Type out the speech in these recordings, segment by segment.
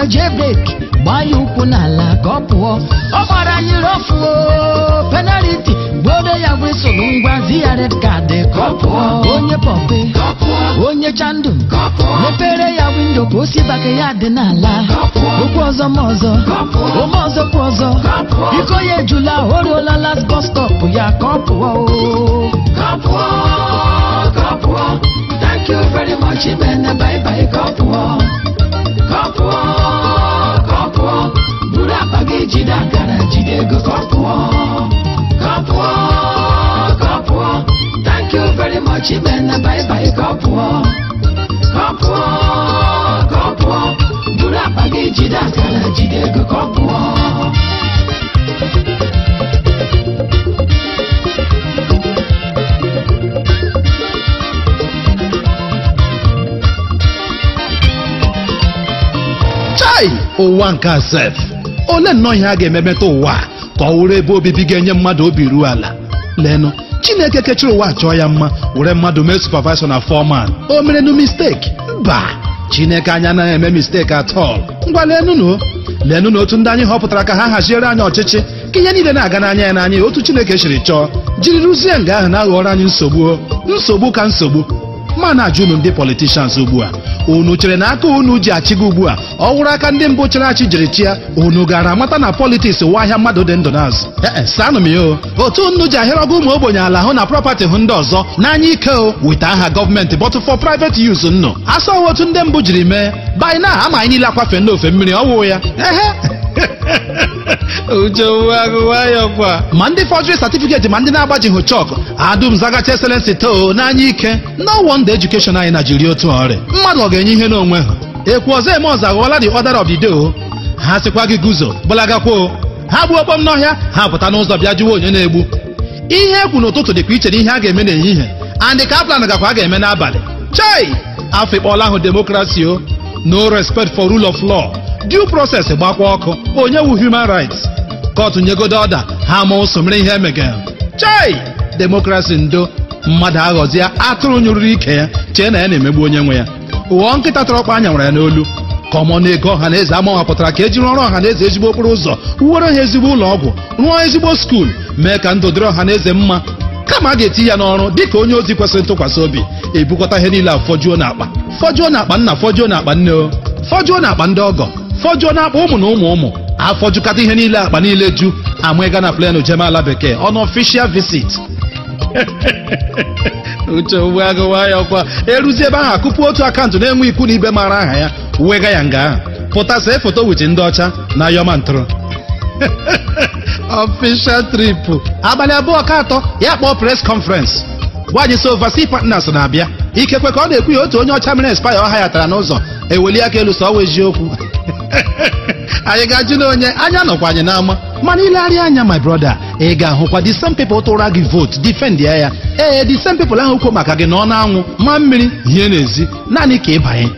ife jebeki gbanye ụkwụ n'ala ka ọ pụọ ọ gbara anyị rofu penaliti gboro ya wesolu ngwa ziya red kaadị card ọ pụọ onye pọpe onye chandu mepere ya windo ka osi bake ya dị n'ala okwu ọzọ ma ọzọ ome ọzọ kwa ọzọ iko ya ejula o ruola las bọs stọp ya ka ọ pụọ Thank you very much, Ibene. Bye bye, God. ụwa nke asef ole nnọọ ihe a ga-ememeta ụwa ka ọ wụrụ ebe obibi ga-enye mmadụ obi ruo ala leenụ chineke kechiri ụwa chọọ ya mma were mmadụ mee supavaisọ na fọman o mere nu misteki mba chineke anya anaghị eme misteki atọl ngwa lenụnụ leenụ na otu ndị anyị họpụtara ka ha haziere anyị ọchịchị ka ihe niile na-aga n'anya ya n'anya otu chineke siri chọọ jiri rụzie nga ahụ na-aghọrọ anyị nsogbu nsogbu ka nsogbu ma na-ajụ unu ndị politishans ugbu a unu chere na aka unu ji gị ugbu a ọ wụrụ aka ndị mbụ chere achị jiri chịa unu gara amata na politiks wa ahịa mmadụ dị ndụ n'azụ ee saanụ m ya otu nnu ji ahịrị ọgụ ụmụ ogbenye ala hụ na prọpatị hụ ndị ọzọ n'anya ike o wita aha gọọmenti bọtụ fọ private use nnu asa otu ndị mbụ jiri mee by now ama anyị niile akwafe n'ofe mmiri ọwụ ya ehe ma ndị fọdụrị satifiketi ma ndị na-agbajighị chọkụ adum zagacha eselensi too n'anya ike na wọnda edukeshọn anyị na jiri otu ọrịa mmadụ ọ ga-enye ihe n'onwe ha ekwu ọzọ eme ọzọ aghọọla dị ọdara of ha sịkwa gị guzo gbalagakwuo ha gbuo okpom n'ọhịa ha pụta n'ụzọ bịa jụwa onye na-egbu ihe ekwu n'ụtụtụ dịkwa iche na ihe a ga-eme n'ehihie andị kaplan gakwa a ga-eme n'abalị chai afọ ikpọọla ahụ demokrasi o no respect for rule of law due process gbakwa ọkụ onye wu human rights kọtụ nyegode ọda ha ma ụsọ ihe emegara chai demokrasi ndo mmadụ aghọzie atụrụ nyụrụrụ ike ya chee na ya na-emegbu onye nwe ya ụghọ nkịta tọrọ ọkpa anya nwere ya n'olu ka ọmọ na-ego ọha na eze amawapụtara ka ejiri ọrụ ọha na eze ezigbo okporo ụzọ wuwere ha ezigbo ụlọ ọgwụ rụọ ezigbo skuul mee ka ndụ dịrị ọha na eze mma kama a ga-eti ya n'ọrụ dị ka onye ozi kwesịrị ntụkwasị obi ebukọta ihe niile a fọjuo n'akpa fọjuo n'akpa nna fọjuo n'akpa nne fọjuo n'akpa ndị ọgọ fọjụọ na akpọ ụmụ na ụmụ ụmụ afọjụkata ihe niile akpa niile ju ama ịga na plenu jeme ala bekee ọnụ official visit uche uwe agụwa ya ọkwa eruzie ebe ahụ akụpụ otu akaụntụ na-enwe ikwu na ibe mara aha ya wega ya nga ahụ pụta see foto wit ndị ọcha na yọma ntụrụ official trip abalị abụọ ka atọ ya kpọọ press conference gwaanyị so partners na-abịa ikekwe ka ọ na-ekwu ya otu onye ọcha mere spaya ọha ya tara n'ụzọ eweli aka elu sọ ọ wee ji okwu anyị ga-ajụ n'onye onye anya nọkwa anyị n'ama mana ilegharịa anya my brother ị ga-ahụkwa the same people tụra gị vote defend ya ya ee the same people ahụ kwuo maka gị na ọ na-anwụ ma mmiri hie n'ezi naanị ka ịbanye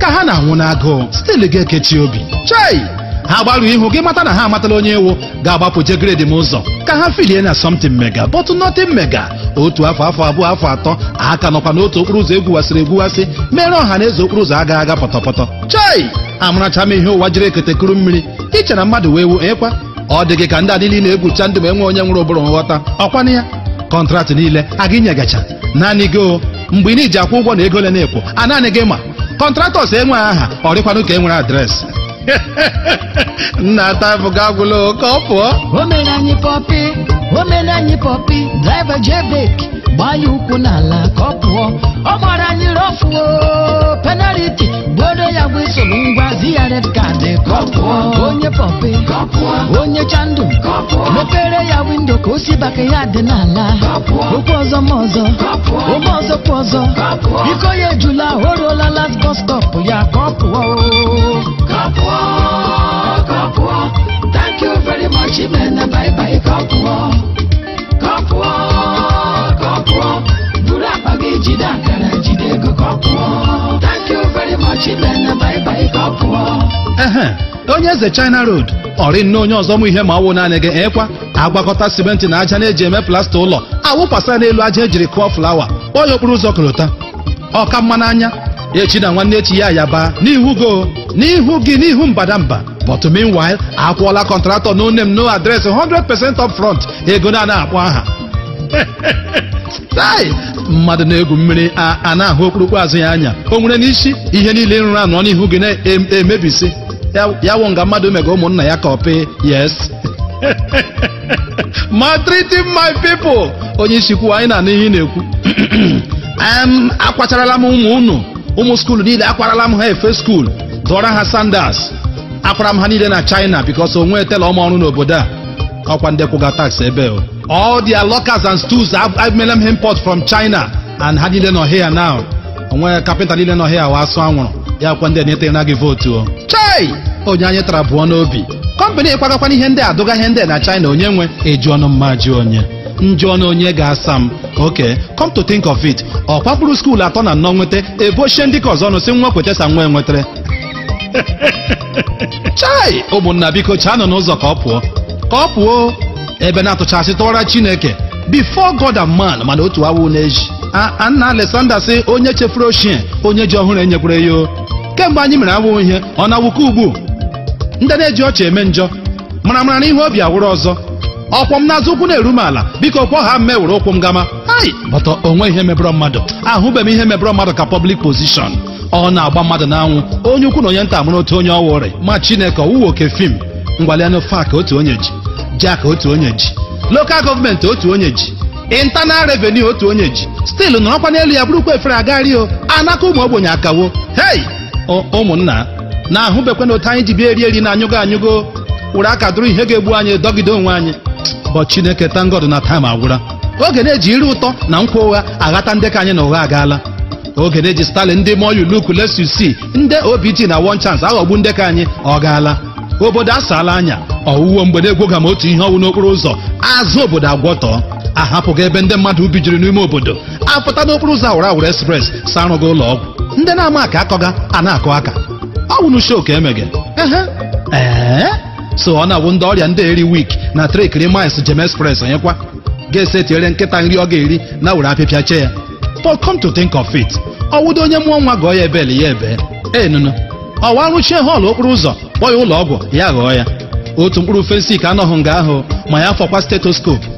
ka ha na-anwụ n'agụụ stil ga-ekechi obi chei ha gbaru ihu gị mata na ha amatala onye iwu ga-agbapụ je gredi m ụzọ ka ha filie na something mega bọtụ nothing mega otu afọ afọ abụọ afọ atọ aka nọkwa n'otu okporo ụzọ egwuwasịrị egwuwasị mere ọha na eze okporo ụzọ aga aga pọtọpọtọ chai amaracha m ihe ụwa jiri eketekuru mmiri iche na mmadụ wee wu ekwa ọ dị gị ka ndị adị niile egwucha ndụ ma enwe onye nwere ụbụrụ nghọta ọkwana ya kọntraktị niile aga inyegacha naanị gị o mgbe ị na iji akwụ ụgwọ na ego na-ekwo a naanị gị ma kọntraktọs enweghị aha ọ dịkwanụ ka e nwere na ta fuga gulo kopo. Omerani popi omena nyi pọpi driver jebek gbanye ukwu n'ala ka ọ pụọ ọ gbara anyị rọfuo penaliti gboro ya bụ isoro ngwa ziya red card ka ọ pụọ onye pọpi onye chandu mepere ya windo ka o si baka ya dị n'ala okwu ọzọ ma ọzọ ome ọzọ kwa ọzọ iko ya ejula o ruola last bus stop ya ka ọ pụọ onye eze China Road ọrị nne onye ọzọ mụ ihe ma ọwụ naanị gị ekwa agwakọta simenti na aja na-eji eme plasta ụlọ awụpasa n'elu aja ejiri kụọ flawa onye okporo ụzọ korota ọka n'anya echi na nwanne echi ya yaba n'ihu go n'ihu gị n'ihu mbadamba but meanwhile akwụọla kọntratọ no name no address 100% up front ego na na-akpọ aha mmadụ na-egwu mmiri a na-ahụ okpurukpu azụ ya anya o nwere n'isi ihe niile nrụ anọ n'ihu gị na-emebisi ya wụ nga mmadụ mega ụmụnna ya ka ọpị yes maltreating my people onye isi kwuo anyị na n'ihe ị na-ekwu akwacharala m ụmụ unu ụmụ skuulu niile akwarala m ha efe skuulu dụọra ha sandas akwara m ha niile na china bikos onwe etela ọma ọrụ n'obodo a ọkwa ndị kwụga tax ebe all their lockers and stools emela m import from china and ha niile nọ here now onwe kapịnta niile nọ here wa asụ anwụrụ ya kwa ndị na naghị vootu o hei onye anyị tara abụọ n'obi kọmpanị kwagakwana ihe ndị adụga ihe ndị na China onye nwe eju ọnụ mma ji onye njụ ọnụ onye ga-asa m oke come to think of it ọ kwapụrụ skuul atọ na nnọọ nweta ebochie ndị ka ọzọ ọnụ si nwa kwetesa nwa enwetere. chai ụmụnna biko nọ n'ụzọ ka ọ pụọ ka ọ pụọ ebe na-atụchasị tụwara Chineke before God and man mana otu awụ na-eji Anna Alexander sị onye chefuru ochie onye ji ọhụrụ enyekwara ya o kemgbe anyị mere awụ ihe ọ na-awụke ugbu ndị na-eji ọchị eme njọ mara mara ihe obi awụrụ ọzọ ọkwọ m n'azụ ụkwụ na-eru m ala biko kwọ ha mme were ụkwụ m gama bọtọ onwe ihe mebụrọ mmadụ ahụbeghị ihe mebụrọ mmadụ ka pọblik pozishọn ọ na-agba mmadụ n'anwụ onye ukwu na onye nta mụrụ otu onye ọwa ma chineke owuwe oke fim ngwalianụ fak otu onye ji jak otu onye ji lokal gọọmenti otu onye ji intanal revenu otu onye ji stilu nọrọkwa n'elu ya bụrụkwa efere agario anaka ụmụ ogbenye akawo hei ụmụnna na-ahụbekwana otu anyị ji bịa eri eri na anyụgo anyụgo wụrụ aka dụrụ ihe ga-egbu anyị dọgide onwe anyị bụ Chineke tangod na taim agwụla oge na-eji iri ụtọ na nkwa ụgha aghata ndị ka anyị na ụgha agaala oge na-eji Stalin ndị moyu luku si ndị OBT na wọn chans aghọgbu ndị ka anyị ọ gaala obodo asaala anya ọwụwo mgbe na-egwoga m otu ihe ọnwụ n'okporo ụzọ azụ obodo agwọtọọ ahapụghị ebe ndị mmadụ ubi jiri n'ime obodo apụta n'okporo ụzọ awụrụ awụrụ espres sa arụghị ụlọ ọgwụ ndị na-ama aka akọga a na-akọ aka ọ bụ n'usho ka emeghe ee so ọ na-awụ ndị ọrịa ndị eri wik na trekiri mils jem express onyekwa ga-ese tinyere nkịta nri ọ ga-eri na were apịpịa chee ya but come to think of it ọwụdo onye mụọ nwa gọọ ya ebeli ya ebe enunu ọwa rụchie họọlụ okporo ụzọ kpọọ ya ụlọ ọgwụ ya ghọọ ya otu mkpụrụ fensik anọghị nga ahụ ma ya fọkwa stetoskopu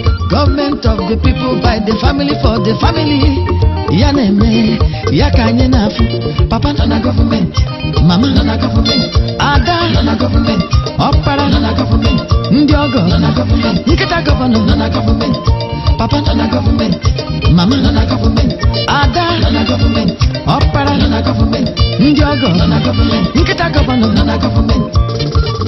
Government of the people by the family for the family. Ya neme, ya kanye nafu. Papa nana government, mama na government, ada na na government, opara nana government, na nana government, nkita governor nana government, papa na government, mama na government, ada na na government, opara nana government, na nana government, nkita governor nana government.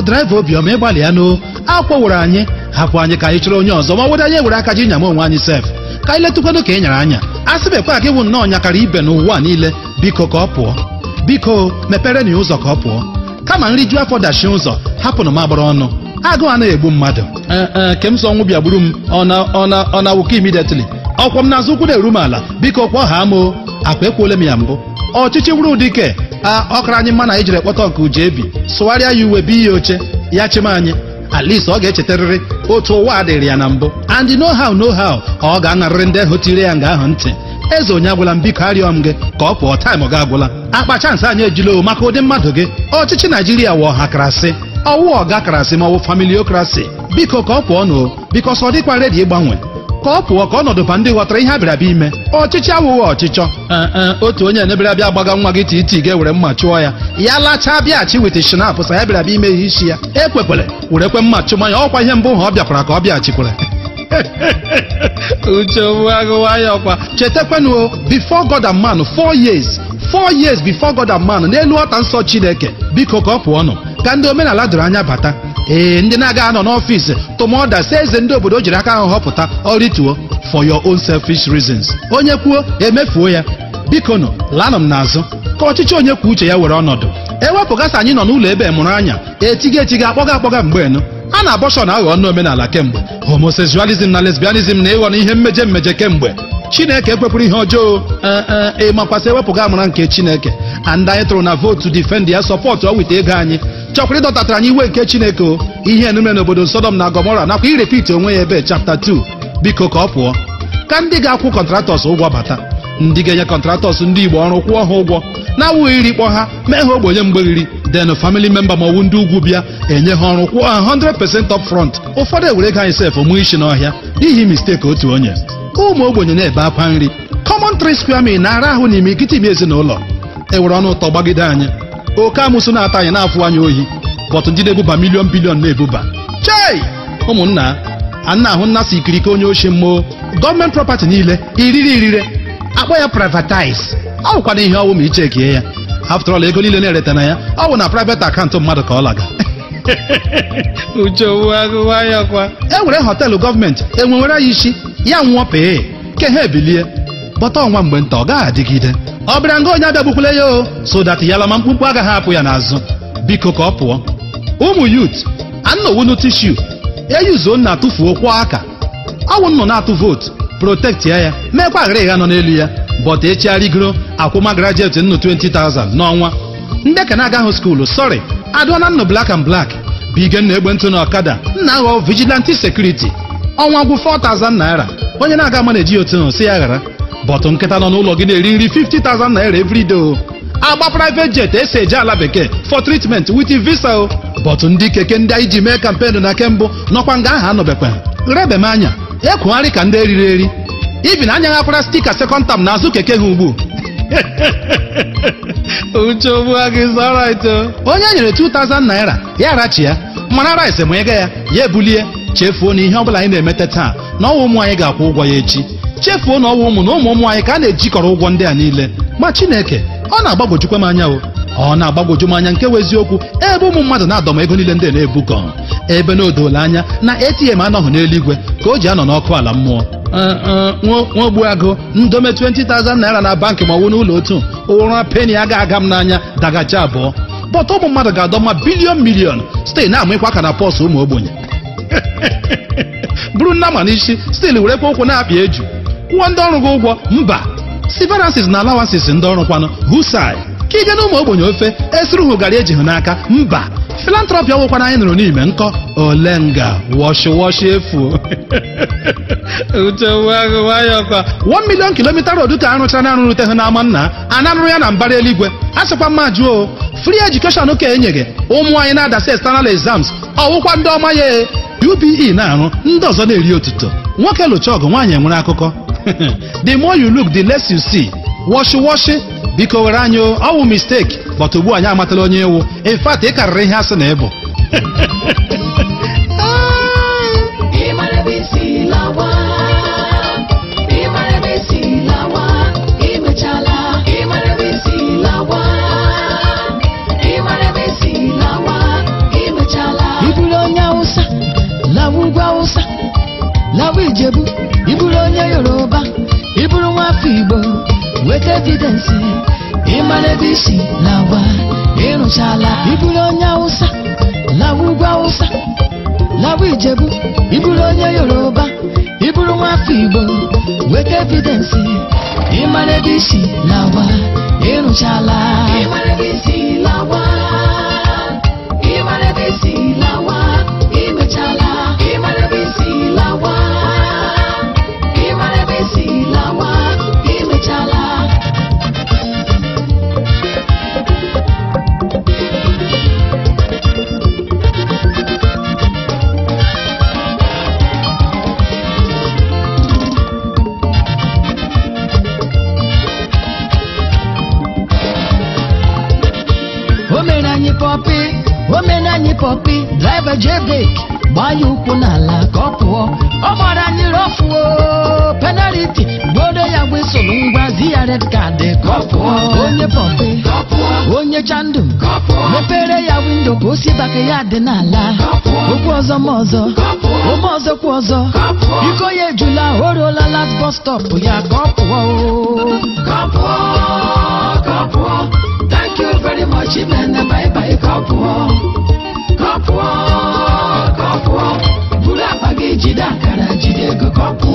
bụ draiva obiọma ịgbalịa nụ akwọwụrụ anyị hapụ anyị ka anyị chọrọ onye ọzọ ma wede anyị were aka ji nyama onwe anyị sef ka anyị letụkwado ka ị e nyara anya a sịbekwa aka ịwụ nnọọ nyakara ibe n'ụwa niile biko ka ọ pụọ biko mepere na ụzọ ka ọ pụọ kama nri ju afọ dachi ụzọ hapụnụ m agbara ọnụ agụụ anaghị egbu mmadụ e, e, ke m sọ ọnwụ bịa gburu m ọ na awụka imidetili ọkwa m n'azụ ụkwụ na-eru m ala biko kwa ọha m akwa ekwuole m ya mbụ ọchịchị wuru ụdị ọkara anyị na anyị jiri ekpọta ọkụ uju ebi sụgharịa ya uwe bi ya oche ya chim anyị at least ọ ga-echetarịrị otu ụwa dịrị ya na mbụ and no how no how ka ọ ga anarịrị ndị ahụ tiri ya nga ahụ ntị eze onye agwụla m biko arịọ m gị ka ọ pụọ taịm ọ ga-agwụla akpa chansị anyị ejila o maka ụdị mmadụ gị ọchịchị naijiria wụ ọha karasị ọwụ ọga karasị ma ọ bụ familiokrasi biko ka ọ pụọ n'o biko sọ dịkwa redi ịgbanwe ka ọ pụọ ka ọnọdụ ba ndị ghọtara ihe abịarabịa ime ọchịchị awụghị ọchịchọ otu onye na-ebịarabịa agbaga nwa gị tii ga-ewere mma chụọ ya ya lachaa bịaghachi wit shinap sa ya bịarabịa ime ihe isi ya ekwekwere were kwe mma chụma ya ọkwa ihe mbụ ha ọ bịakwara ka ọ bịaghachikwere uche nwagụwaya ọkwa chetakwanụ before God and man four years four years before God and man n'elu ọta nsọ Chineke biko ka ọ pụọ nụ ka ndị omenala doro anya bata ee ndị na-aga anọ n'ọfịs tụmọda si eze ndị obodo jiri aka ahụ họpụta ọrịtuo for your own selfish reasons onye kwuo emefuo ya biko nọ lanụ m n'azụ ka ọchịchị onye kwuo uche ya were ọnọdụ ewepụgasị anyị nọ n'ụlọ ebe e mụrụ anya e etiga etiga akpọga akpọga mgbe nụ a na na aghọ ọnụ omenala kemgbe homosexualism na lesbianism na ịghọ na ihe mmejọ mmeje kemgbe chineke ekwepụrụ ihe ọjọọ e, ịmakwasị ewepụga amụra nke chineke and anyị tụrụ na vootu defend ya sọpọtụ ọ weta ego anyị chọkwara ịdọtatara anyị iwe nke chineke o ihe enume n'obodo sodom na gomora nakwa irepiti onwe ya ebe chapta 2 biko ka ọ pụọ ka ndị ga-akwụ kọntratọs ụgwọ bata ndị ga-enye kọntratọs ndị igbo ọrụ kwụọ ha ụgwọ na-awụghị iri kpọ ha mee ha ogbenye mgberiri den famili memba ma ọwụ ndị ugwu bịa enye ha ọrụ kwụọ ha 100% up frọnt ụfọdụ ewere ga anyị sef mụ isi n'ọhịa n'ihi misteki otu onye ụmụ ogbenye na-ebe akwa nri kọmọntrị tri square na-ara ahụ n'ime ikiti ime ezinụlọ ewere ọnụ ụtọ gbagide anyị oke amụsụ na-ata anyị na-afụ anyị ohi bọtụ ndị na-ebuba milion bilion na-ebuba chei ụmụnna a na-ahụ nnasị ikirike onye oshi mmụọ gọọmenti prọpati niile iriri irire akpọ ya privatize ọ bụkwana ihe ọwụ ma i chekie ya after all ego niile na-ereta na ya ọ bụ na private akaụntụ mmadụ ka ọ laga e nwere họteelụ gọọmenti enwewere ya isi ya nwụọ pee ke ha ebilie bọta ọnwa mgbe nta ọ gaghị adịgide ọ bịara nga onye abịagbukwule ya o so that yalama mkpụmkpụ agaghị apụ ya n'azụ biko ka ọ pụọ ụmụ yut anọwunu tishu eyuzo nna atụfuo kwọ aka ọwụ na atụ vootu protekt ya meekwa aghara ịgha nọ n'elu ya bọta echigharịgoro akwụma grajet nnụ 20,000 n'ọnwa ndị ka na-agaghị skuulu sọrị adụọna nnụ blak and blak bigen na egbentụ na ọkada nna aghọ vigilanti sekuriti ọnwa gwụ 4,000 naira onye na-aga mana ejighị otu nnụ si ya ghara bọtụ nkịta nọ n'ụlọ gị na-eri nri 50,000 naira everyday agba private jet esi eje ala bekee for treatment with visa o bọtụ ndị keke ndị anyị ji mee kampenu na kembụ nọkwa nga aha anọbekwa rebe m anya ekwugharị ka ndị eriri eri ibi na anya ghakwara stika sekọnd tam azụ keke ha ugbu uche ogbua gị zarito onye e nyere 2000 naira ya rachi ya mana rice ma ego ya ya ebulie chefuo na ihe ọbụla anyị na-emete taa na ọnwa ụmụ anyị ga-akwụ ụgwọ ya echi chefuo na ọwụ ụmụ na ụmụ ụmụ anyị ka a na-ejikọrọ ụgwọ ndị a niile ma Chineke ọ na-agbagwojukwa m anya o ọ na agbagoju m anya nke bụ eziokwu ebe ụmụ mmadụ na-adọma ego niile ndị na-ebukọ ebe na odola anya na ATM anọghị n'eluigwe ka o ji anọ n'ọkụ ala mmụọ nwogbuagụ ndome 20,000 naira na bankị ma ọwụ n'ụlọ otu ụra peni aga aga m n'anya dagacha abụọ bọta ụmụ mmadụ ga-adọma bilion milion site na amịkwa aka na pọs ụmụ ogbenye bụrụ ma n'isi stil werekwa ụkwụ na-apịa eju kwụọ ndị ọrụ gị ụgwọ mba siveransis na alawansis ndị ọrụ kwanụ husai ka ije na ụmụ ogbenye ofe esiri hụ gara eji hụ n'aka mba filantrọpị ọgwụkwana anyị nụrụ n'ime nkọ olenga wọshịwọshị efu one million kilomita rod ka arụchara na arụrụte hụ n'ama nna anarụrụ ya na mbara eluigwe a sịkwa mma jụọ fri education ka e ụmụ anyị na-adasị external exams ọwụkwa ndị ọma ya UBE e na-arụ ndị ọzọ na-eri otuto nwoke lụcha ọgụ nwaanyị nwere akụkọ the more you look the less you see wọshịwọshị biko were anyị ọ mistake but ugbu anyị amatala onye ewu in fact ị karịrị ihe asị na ịbụ ah, lawa ijebu ọba ị bụrụ nwafọ igbo weta evidensi ịmara ebe isi na agwa ịrụchala ịbụrụ onye awụsa lawa ugwu awụsa lawa ijebu ịbụrụ onye yoruba ịbụrụ nwafọ igbo weta evidensi ịmara ebe isi na agwa ịrụchala kopi driver jevik gbanyụ ukwu n'ala ka ọ pụọ ọ gbara anyị rofuo penaliti gbodo ya gwisụlụ ngwa zi ya red kaadị ka onye pụọ onye pọpi onye chandu mepere ya windo ka osi baka ya dị n'ala okwu ọzọ ma ọzọ ome ọzọ kwa ọzọ iko ya ejula o ruola last bus stop ya ka ọ pụọ ka ọ pụọ ka thank you very much imene bye bye ka kọpụọ kọpụọ buru akpa gị jide akara jide